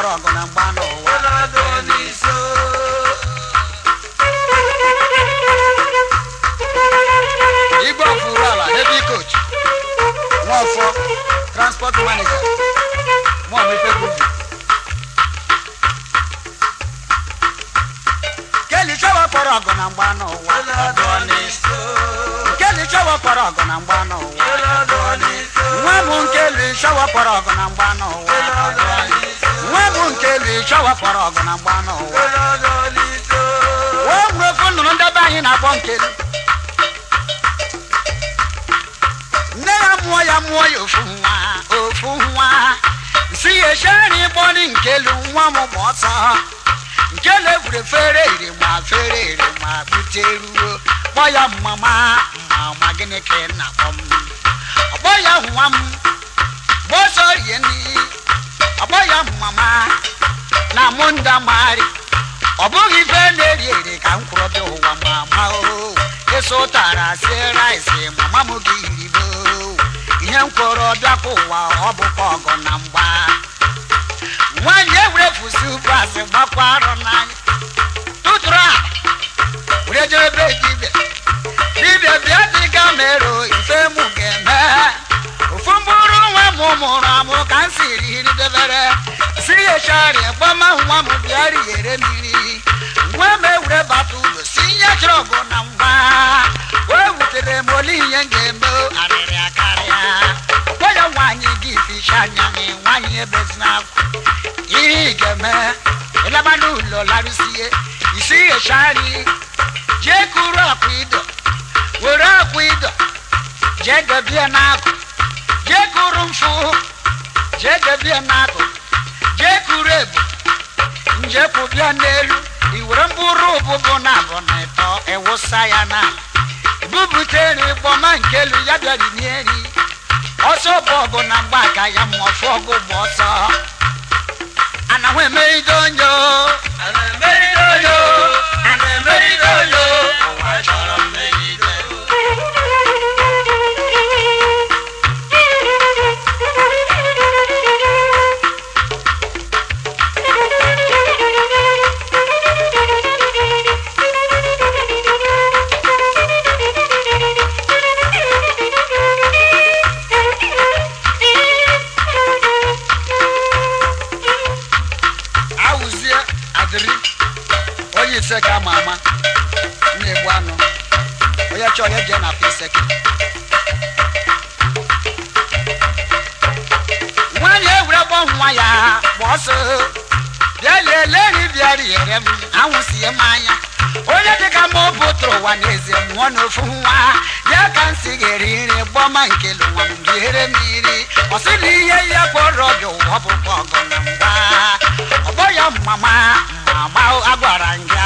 ọrụ ọgụ na mgba n'ụwa igwe ọfụrụ ala heavy coach nwaọfọ transport manager nwaọmifebuvi keli chọwa kpọrọ ọgụ na mgba n'ụwa keli chọwa kpọrọ ọgụ na mgba n'ụwa nwa m nkeli chọwa kpọrọ ọgụ na mgba n'ụwa chọwa fọrọ ọgụ na mgba n'ụwa wee nwere ofe nnụnụ ndebe anyị na-akpọ nkiri nne ya mụọ ya mụọ ya ofu nwa ofu nwa si ya echere ịgbọni nkelu nwa m ma ọsọ nkelu egwure fere iri ma fere iri ma buteruo kpọ ya mama mama gịnị ka ị na-akpọ m ọkpọ ya nwa m bụghị ife na-eri eri ka m kwụrụ bịa ụwa ma ma o eso ụtara sie rice mama m gị iribo ihe m kwụrụ bịakwa ụwa ọ bụkwa ọgụ na mgba nwaanyị ewurefusi bas gbakwa arụ n'anya tụtụrụ a were jee ebe dibịa dibịa bịa dịga mero ife mụ ga-eme ofu mkpụrụ nwa m mụrụ amụ ka m siri debere shari gbama nwa m bịara yere mmiri nwa m ewure bata ụlọ si nye chọbụ na ngwa wee wutere m ole ihe m ga-eme arịrị akarịa gwa ya nwaanyị gị ficha anya gị nwaanyị ebezina akwa ihe ị ga-eme ịlaba n'ụlọ larụsie isi ghechari jee kuru akwa ido were akwa ido jee debie n'akụ jee kuru mfụ jee debie n'akụkụ njepu bịa n'elu iwere mbụrụ ụbụbụ na abụ na ya na ebubute n'ịgbọma nke ya bịara n'eri ọsọ bọọbụ na mgba ya ma ọfụ ọgụ bụ ọsọ anahụ emeride onyo anahụ emeride onyo anahụ emeride onyo kyɛ ɔyɛ deɛ na afei sɛke wɔnyɛ ewura bɔ ho ayɛ a bɔɔso deɛ lɛni biara yɛrɛ mu ahosie maanya onye dịka ma ọ bụ tụrụ ụwa n'ezie mụọ n'ofu nwa ya ka m si ga-eriri gbọma nkele nwa m biere mmiri ọ sị na ihe ya kpọrọ ọbịa ụwa bụkwa ọgụ na ngwa ọ bọ ya mama mama a gwara nga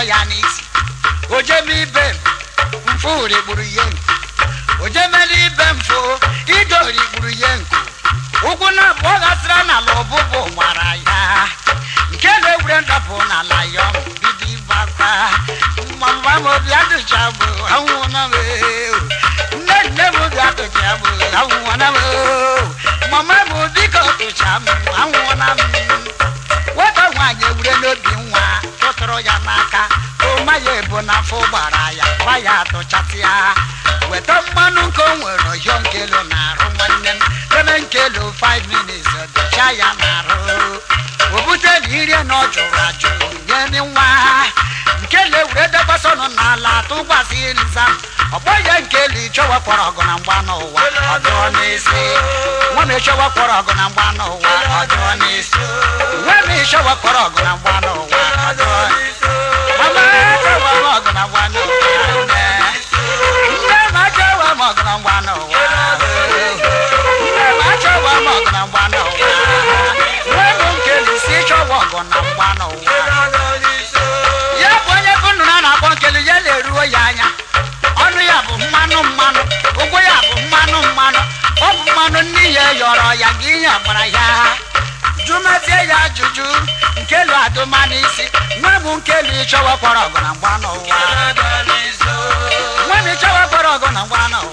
ọzọ ya n'isi ojeme ibe m mfụri gburu ihe nko ojemela ibe mfụ idori rigburu ihe nko ụkwụ na abụọ gasịra n'ala ọbụbụ gbara ya nke na egwure ndapụ n'ala ya ọmụ bido ịgbakwa mma m obi adịcha bụ adịcha bụ m mama m tụtụrụ ya n'aka na n'afọ gbara ya gwa ya atụchasịa weta mmanụ nke onwere nwere ọhịọ nkelu na-arụ nwanne m debe nkelu 5 minutes dụcha ya na-arụ obute na ire na ọ jụrụ ajụ nye nwa nkele were debasọnụ n'ala tụkwasị nza ọgbọ ya nkelu ịchọwepụrụ ọgụ na mgba n'ụwa ọ dụọ n'isi nwa m ịchọwepụrụ ọgụ na mgba n'ụwa ọ dụọ n'isi nwa m ịchọwepụrụ ọgụ na mgba n'ụwa ọ dụọ n'isi jụzie ya ajụjụ nkelu adụma n'isi nwa m nkelu ịchọwa kwara ọgụ na mgba n'ụwa nwa m ịchọwa kwara ọgụ na mgba n'ụwa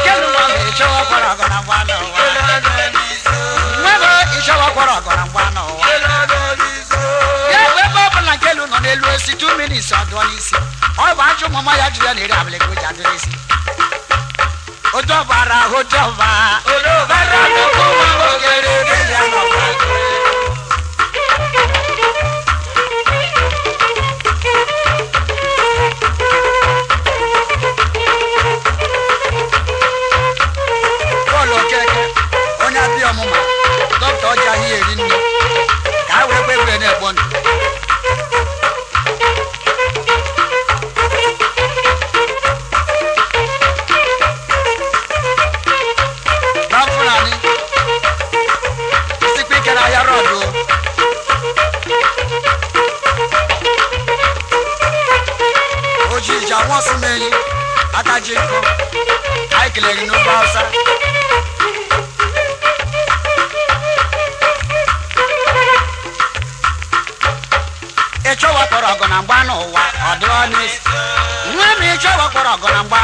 nkelu nwa m ịchọwa kwara ọgụ na mgba n'ụwa nwa m ịchọwa kwara ọgụ na mgba n'ụwa ya bụ ebe ọ bụla nkelu nọ n'elu osi tu minits ọdụọ n'isi ọ bụ ajọ ụmụ ya jụrụ ya na eri abalị ka o ji adịrị isi ojọba ra ojọba. olóòbá ra gbogbo wa ó kéré kéde àwọn ọmọ magic book I kelere gị n'ofe Hausa ịchọ wakpọrọ ọgụ na mgba n'ụwa ọ dị ọnụisi nwa m ịchọ wakpọrọ ọgụ na mgba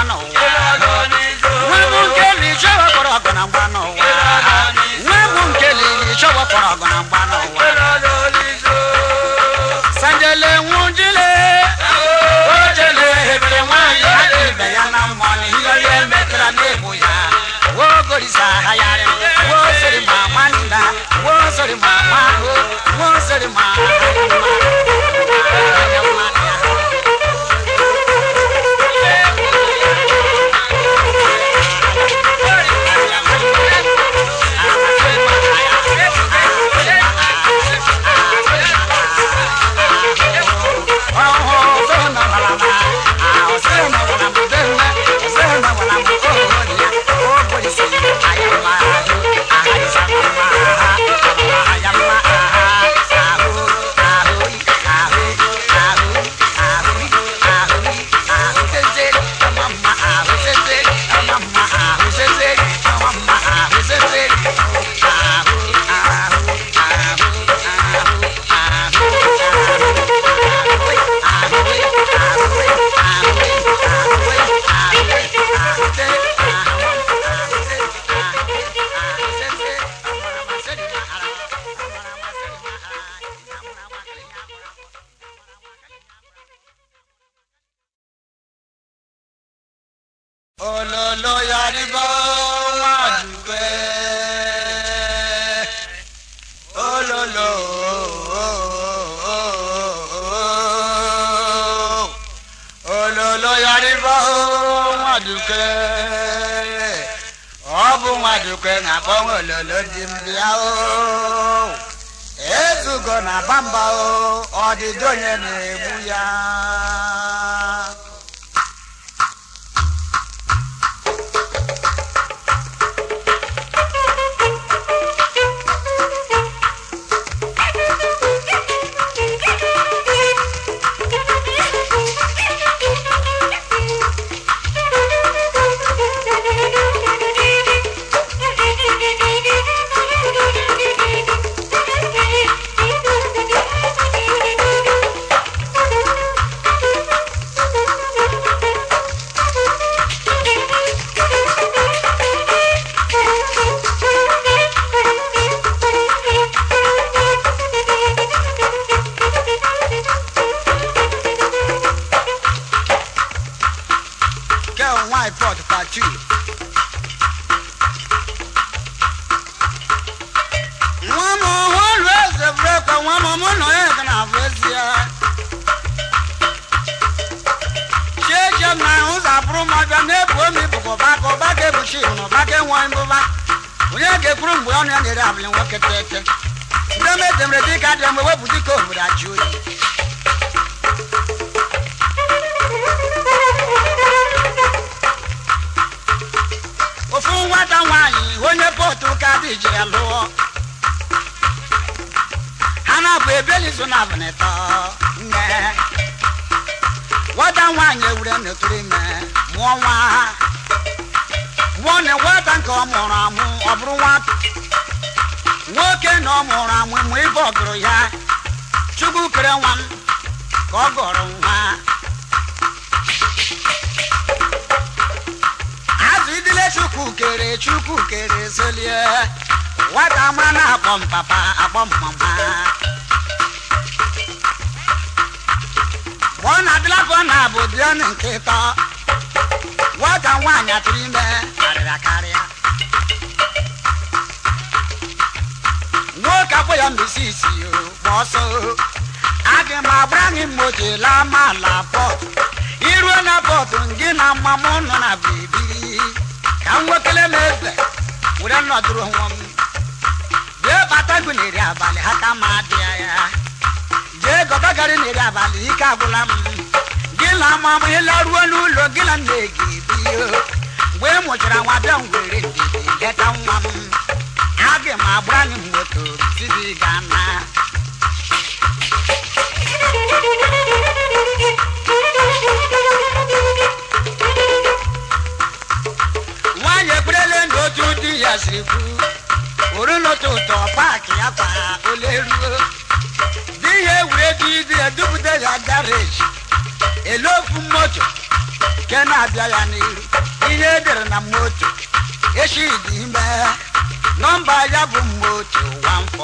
adonis. nwa m nke na ịchọ wakpọrọ ọgụ na mgba n'ụwa nwa m nke na ịchọ wakpọrọ Once at a ọdịdị onye na-egbu ya bụrụ m abịa na-ebu omi bụbọba ka ọba ga-ebuchi n'ọba ga-enwe mbụba onye ga-ekwuru mgbe ọnụ ya na-ere abụlị nwoke tete ndị m edemere dịka adịra mgbe wepụ dịka obodo ajụ oyi ofu nwata nwaanyị onye pọtụ ụka dị jiri lụọ ha na-abụ ebelizo na abụnịtọ nwata nwaanyị ewure n'oturu ime mụọ nwa ha nwa na nke ọ mụrụ amụ ọ bụrụ nwa nwoke na ọ mụrụ amụ mụ ibe ọgụrụ ya chukwu kere nwa m ka ọ gọrọ nwa azụ idile chukwu kere chukwu kere zelie nwata ma na-akpọ m papa akpọ mama na na-abụ nwata nwaanyị atụrụ ime karịrị karịa nwoke agbụ ya mbisi isi gba ọsọ aga m agbara gị mma oche laa maala pọt iruo na pọtụ gị na mma m nọ na biribiri ka m nwekele m eze were nọdụrụ nwa m jee bata gị n'eri abalị ha ka ma dịa ya jee gọba gari n'eri abalị ike agwụla m la ma mo ye laruwa lu lo gila ne gi bi yo we mo jira wa da were di le ta wa mu age ma bra ni mo to gana wa ye kurele ndo tu di asiku orí ló tó tọ̀ páàkì apá olérú bí ewúrẹ́ bíi di ẹ̀dúgbùdẹ́ yàgá rèé elofu moto nke na-abịa ya n'ihu ihe edere na moto eshidi ime nọmba ya bụ moto 144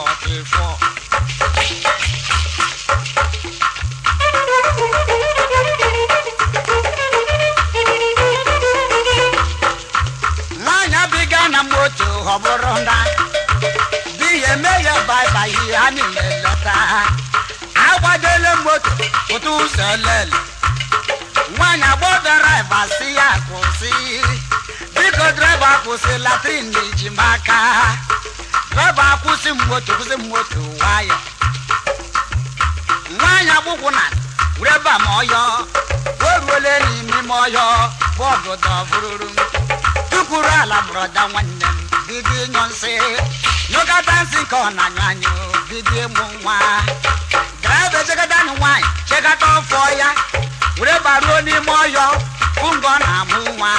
nwaanyị abịga na moto ọ bụrụ na di ya eme ya baibai ha niile leta ha moto pụta ụzọ lele dọ́bà kwụsị latrin na-eji maka dọ́bà kwụsị moto kwụsị moto nwayọ nwanyị gbụkwụ na reba ma ọyọ o ruole n'ime ma ọyọ bọọdụ dọbụrụrụ tukwuru ala brọda nwanne m bido ịnyụ nsị nyụgata nsị ka ọ na-anyụ anyụ bido ịmụ nwa draịva echekata na nwaanyị chekata ọfọ ya were baruo n'ime ọyọ bụ mgbe ọ na-amụ nwa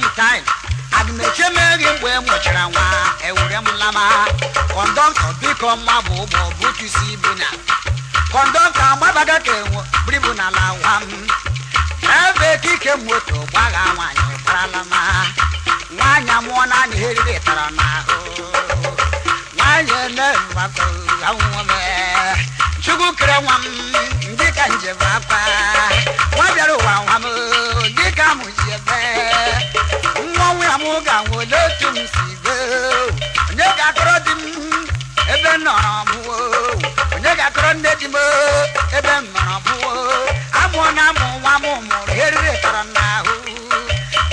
mu time adumekye mmeri mgbe mụchara nwa ewure m lama kọndọktọ biko mma bụ ụgbọ butu si ibu na kọndọktọ agbabaga ka enwe bribu n'ala nwa m ebe kike moto gbagha nwaanyị gbarala ma nwaanyị amụọ naanị eriri tara n'ahụ nwaanyị enemgbakọ awụme chukwu kere nwa m dịka njem akwa nwa bịara ụwa nwa m dịka mụ ebe jimbo ebe mmara bụọ amụ na amụ nwa m mụrụ eriri tara n'ahụ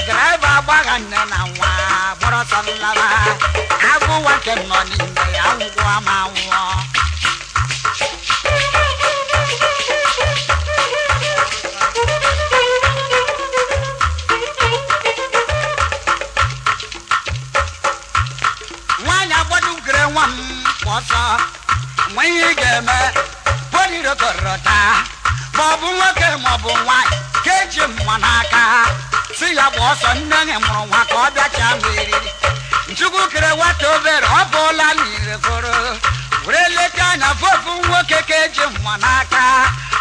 draịva agbagha nne na nwa gbọrọ ọsọ nlaba agụ nwa nke m nọ n'ime ya ngwụọ ma nwụọ nwaanyị agbọdụ gere nwa m ọsọ nwe ihe ị ga-eme kọrọta maọbụ nwoke maọbụ nwaanyị ka eji mma n'aka ha si ya bụ ọsọ nne nye mụrụ nwa ka ọ bịacha m eriri nchukwu kere nwata obere ọ bụọla n'ire were anya vovu nwoke ka eji mma n'aka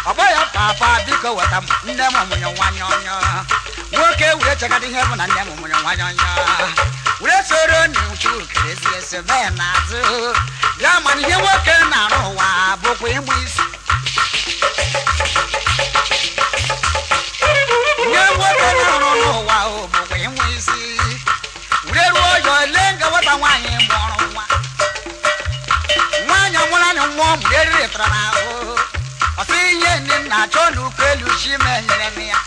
ọ bụghị papa biko weta nne m nwanyị nwoke bụ na mana ihe nwoke na-arụ ụwa bụkwa ịmụ isi ọmụrịtaraahụ ọtụ ihe ndị nna achọ n'ukwu elu chi menyere ya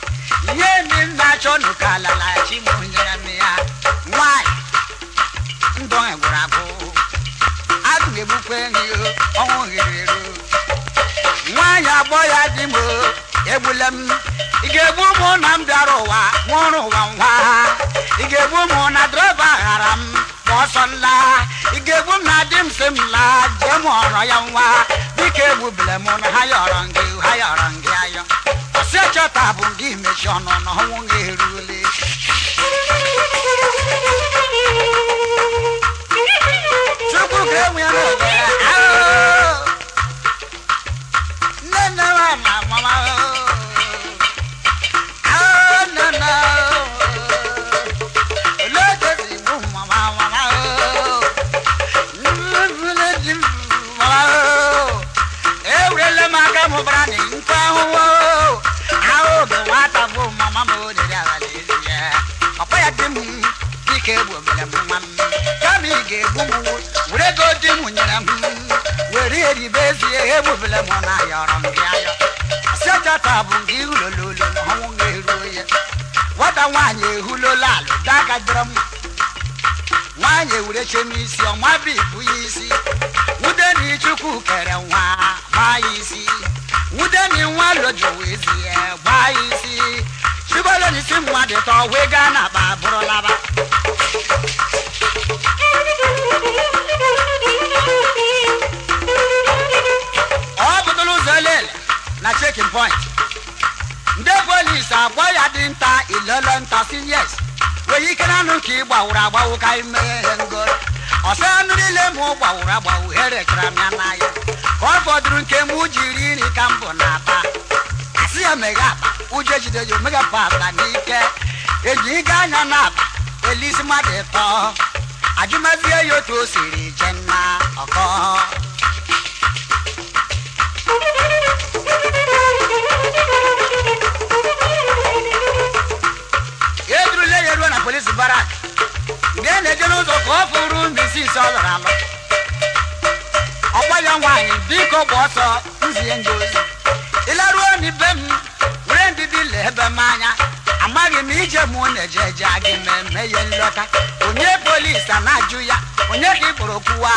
ihe ndị nna achọ n'ụka alala chi monyere m ya nwanyị ndọ gwụrụ abụ agụ egbukwa enyi ọnwụ hiriro nwaanyị ya dị m egbule m ị ga m ụwa nwụrụ ụwa nwa ị ga-egbu ụmụ na drọba ghara m ọsọ nla ị ga-egbu m na di m si m laa jee ọrọ ya nwa biko egbubile m na ha yọrọ gị ha yọrọ gị ayọ si echọta bụ gị mechi ọnụ na ọnwụ gị erule chukwu ga-enwe ya kungu wure go di mu nyina mu were eri be si e bu bele mo na yoro mbi ayo se jata bu ngi ulololo no hu ngeru ye wada nwanye ehulo lalu daga drum nwanyị ewurechem isi ọnwa bụ ibu ya isi wudeni chukwu kere nwa gbaa ya isi wudeni nwa lojuwa ezi ya gbaa ya isi chibolonisi mmadụ tọwega na akpa bụrụ laba na checking point ndị polis agba ya dị nta ilele nta siyes nwere ike na anụ ka ị gbawuru agbawu ka anyị mee ihe ngoro ọsọ anụ niile mụ gbawuru agbawu herechara m ya n'ahịa ka ọ fọdụrụ nke mụ jiri nri ka mbụ na-ata asị ya meghe akpa ụjọ ejide ya omega pasta n'ike eji ịga anya na akpa elisi mmadụ ịtọ ajụmazie ya otu o siri je ọkọ n'ụgbọ ọtọ nzie ndị ịlaruo n'ibe m were ndidi lee ebe m anya amaghị m ije m na-eje eje gị eme ihe nlọta onye polisi a na-ajụ ya onye ka ị kpụrụ okwuwa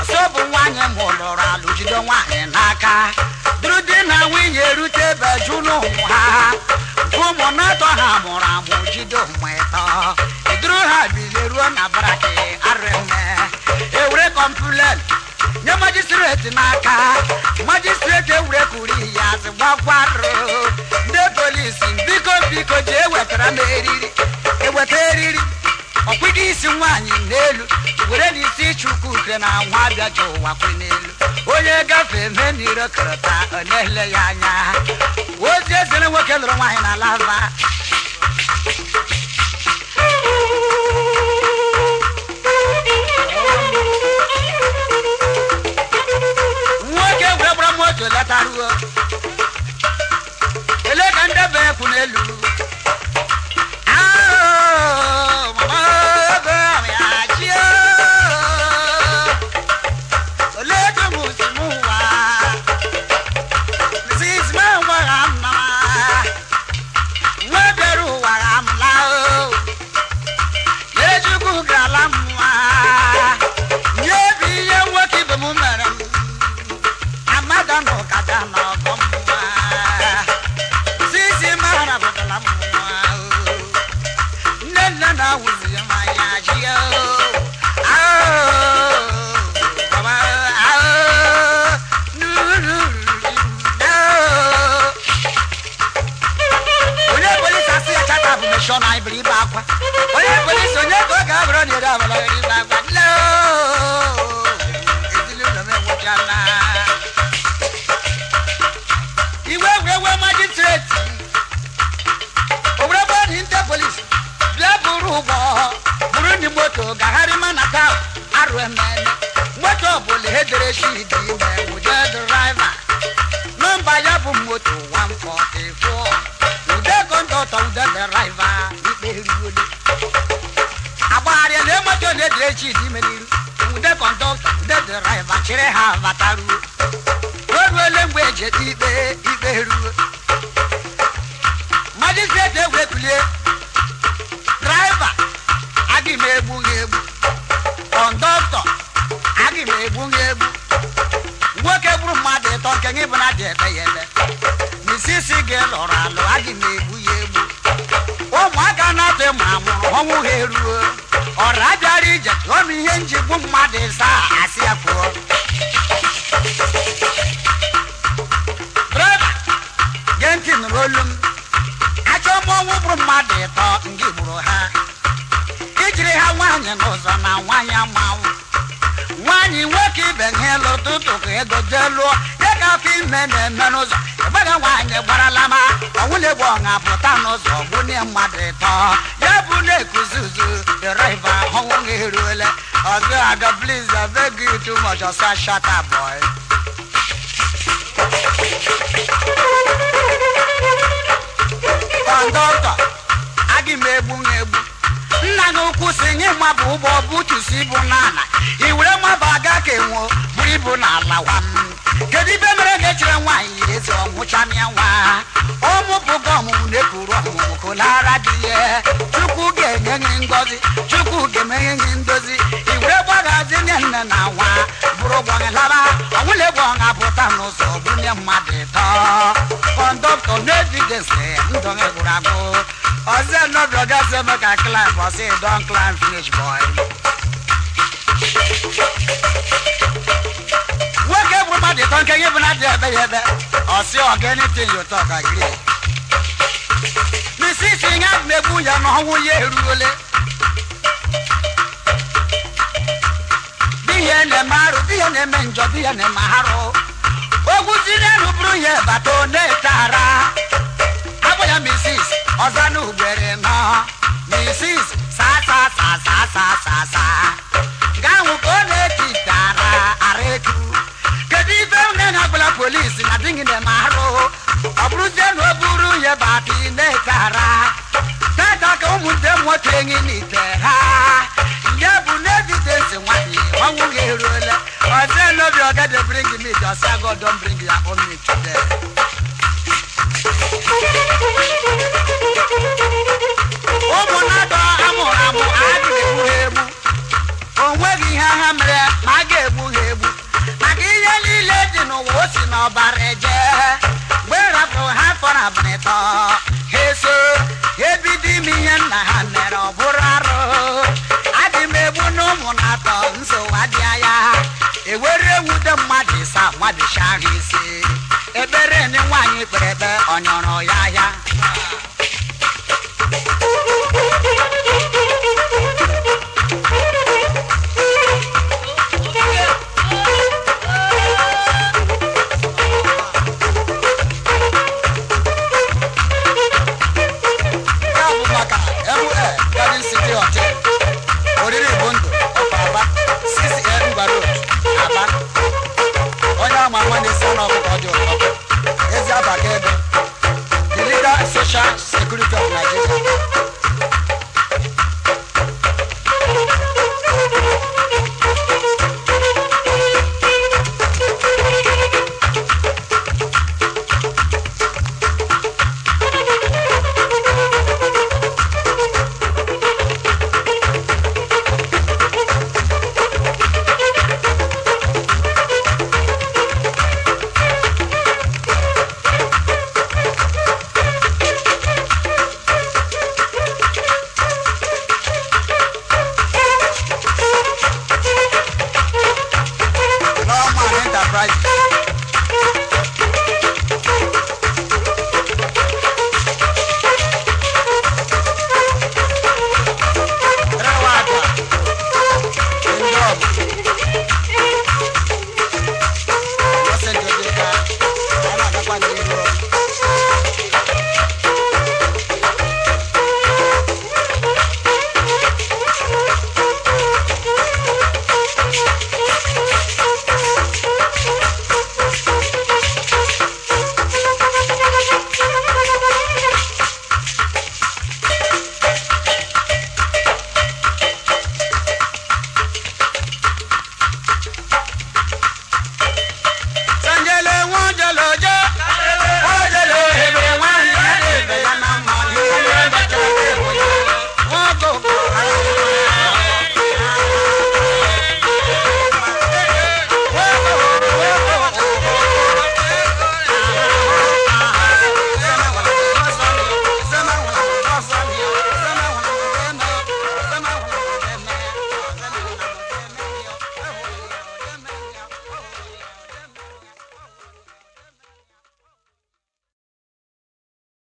ọsọ bụ nwaanyị ma ụlọrụ alụ jide nwaanyị n'aka duru di na nwunye erute ebe jụ n'ụmụ ha ụmụ na-atọ ha mụrụ amụ jide ụmụ ịtọ iduru ha bilie ruo na baraki Magistrate n'aka magistrate ewurekwuru ya azị gbakwarụ ndị polisi biko biko ji ewetara m eriri eweta eriri ọkwụgo isi nwaanyị n'elu were n'isi ịchụkwu ukre na nwa abịa ji ụwa kwe n'elu onye gafee mee n'iro kọrọta ọ na-ele ya anya ozi ezere nwoke lụrụ nwaanyị na lava ọchọ na anyị bụrụ ibe akwa onye polisi onye ka ọ ga-abụrụ na ere abala chidimeniru ude kọndọktọ ude dịraiva chịrị ha bataruo o ruole mgbe eji ete ikpe ikpe ruo majistreti egwe kulie draiva adị m egbu gị egbu kọndọktọ adị m egbu gị nwoke gburu mmadụ ịtọ nke gị bụ na dị ebe ya ebe n'isisi gị lụrụ alụ adị m egbu ya egbu ụmụaka na-atụ ịmụ amụrụ ọnwụ ha eruo ọra abịa ije m ihe njigbu mmadụ ịsa asị ya pụọ draiva gee ntị nụrụ olu m achọọ m ọnwụ bụrụ mmadụ ịtọ ndị gburu ha ijiri ha nwaanyị n'ụzọ na nwaanyị amanwụ nwaanyị nwoke ibe ha elu tụtụ ka ego jee lụọ n'ọkụ ime na-eme n'ụzọ ebere nwaanyị gbarala ma ọnwụ na-egbu pụta n'ụzọ gbunye mmadụ ịtọ ya bụ na-ekuzi uzu deriva ọnwụ gị eruole ọzọ ada please I beg too much ọsọ shut up boy kọndọktọ aga m egbu na egbu nna na ukwu si nye mma bụ ụgbọ butusi bụ n'ala i were mmaba aga ka enwo bụrụ ibu n'ala ala wa kedu ibe mere ga echere nwaanyị yiri eze ọnwụchamia nwa ọmụpụgo ọmụmụ na ekuru ọmụmụ kolara dị ya chukwu ga-enye gị ngọzi chukwu ga-emenye gị ndozi i were gbagazi nye nne na nwa bụrụ ụgbọ gị laba ọnwụla egwu ọha pụta n'ụzọ bunye mmadụ ịtọ doctor no fit dey say ndong egwurago oze no be oga say make i climb but say e climb finish boy. nwoke bụ mmadụ ịtọ nke gị bụ na dị ebe ya ebe ọ sị anything you talk agree. mrs ihe abụ egbu ya na ọnwụ ya eruole. di ya na-eme arụ di ya na-eme njọ di ya na-eme arụ. ogun ti dẹrù burú yẹn bàtò ní ìtara abóyá mrs sasa sasa náà mrs sàṣàṣàṣàṣàṣà gáwọn kò lè ti dara àrètù kèdí ìfẹ́ na ẹ̀nàgbọ́lá polisi nàdínkì ní màrú ọ̀bùrú jẹ́nu ọ̀bùrú yẹn bàtì ní ìtara tẹ́tà kò mú dé mọ́tò ẹ̀yìn nìtẹ́. bring meat, I say God don't bring your own meat today. ụmụnadọ amụrụ amụ adịghị egbu ha egbu o nweghị ihe ha mere ma a ga-egbu ha egbu maka ihe niile dị n'ụwa o si n'ọbara eje egberebe ọnyọrọ ya ahịa Aba onye ama ama na-esi ọnụ ọkụkọ ọjọọ shots.